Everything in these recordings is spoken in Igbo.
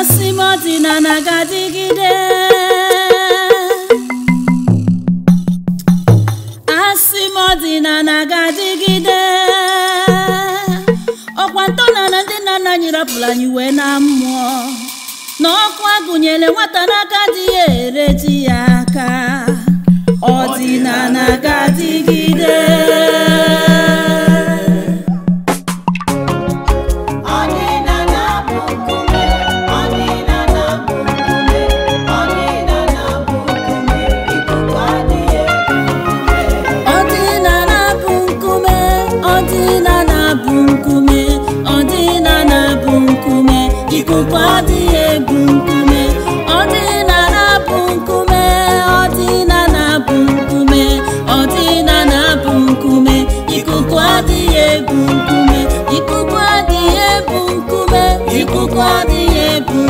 asị m ọdịnala ga-adịgide asị m ọdịnala ga-adịgide ọkwa ntọala ndị nna nna anyị anyị wee na mmụọ na ọkụ agụnyere nwata n'aka dị ya ere ji ya aka ọdịnala ga-adịgide ikuku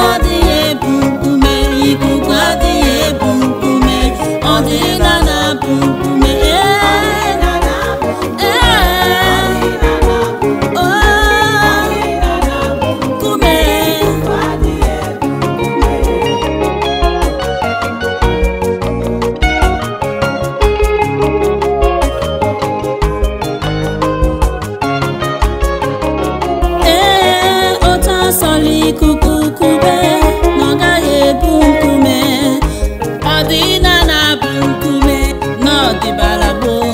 adịghị 地巴拉多。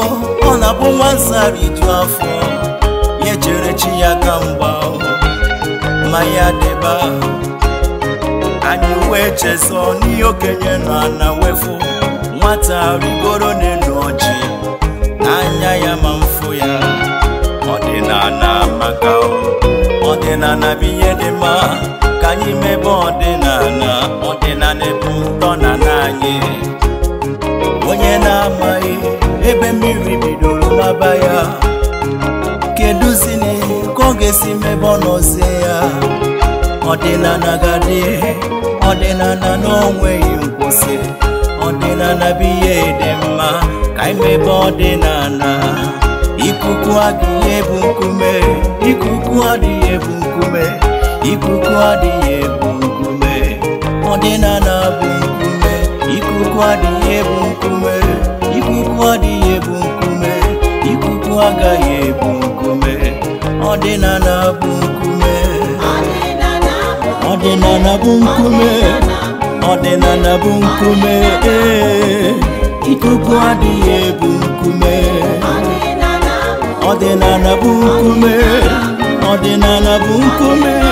ọ na-abụ nwa zara iju afọ ya chere chi ya ka mgba ma ya deba anyị wee chezọ n'ihe okenye na na wefu nwata rigoro n'elu ọjị anya ya ma mfu ya ọdịnala maka na bụ ihe dị mma ka anyị mebe ọdịnala ebe mmiri bidoro n'aba ya keduzine ka ọ ga-esi mebe ọ nọzie ya ọdịnala gadị ọdịnala na onweghị nkwụsị ọdịnala bụ ihe dị mma ka imebe ọdịnala ikuku adịghị ebu nkume ikuku adịghị ebu nkume ikuku adịghị ebu nkume ọdịnala bụ nkume ikuku adịghị ebu nkume Ụwa adịghị ebu nkume ikuku agaghị ebu nkume ọdịnala bụ nkume ọdịnala bụ nkume bụ nkume ee ikuku adịghị ebu nkume ọdịnala ọdịnala bụ nkume